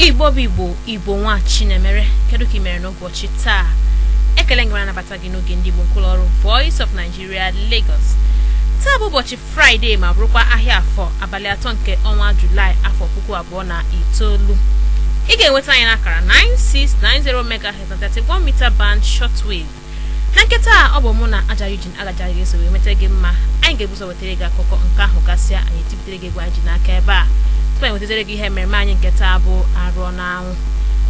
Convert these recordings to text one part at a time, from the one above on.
igbo bụ igbo igbo nwa chinemere kedu ka ị mere n'ụbọchị taa ekele ngere anabata gị n'oge ndị igbo nkwụlọ ọrụ voice of nigeria lagos taa bụ ụbọchị fraịde ma bụrụkwa ahịa afọ abalị atọ nke ọnwa julaị afọ puku abụọ na itoolu ị ga-enweta anyị akara 9690 megahertz na 31 mita band shortwave na nketa ọ bụ mụ na aja ujin agajaghị eso wee nweta gị mma anyị ga-ebuso wetara gị akụkọ nke ahụ gasịa anyị tibutere gị egwu anyị ji n'aka ebe a tupu anyị e wetetere gị ihe mmemme anyị nke taa bụ arụọ anwụ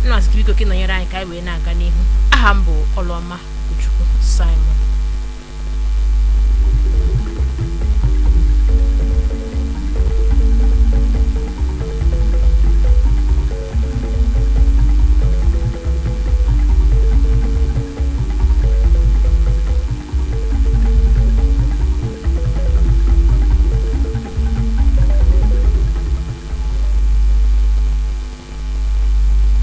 nna azikibiko gị nọnyere anyị ka anyị wee na-aga n'ihu aha m bụ ọlụọma Okwuchukwu Simon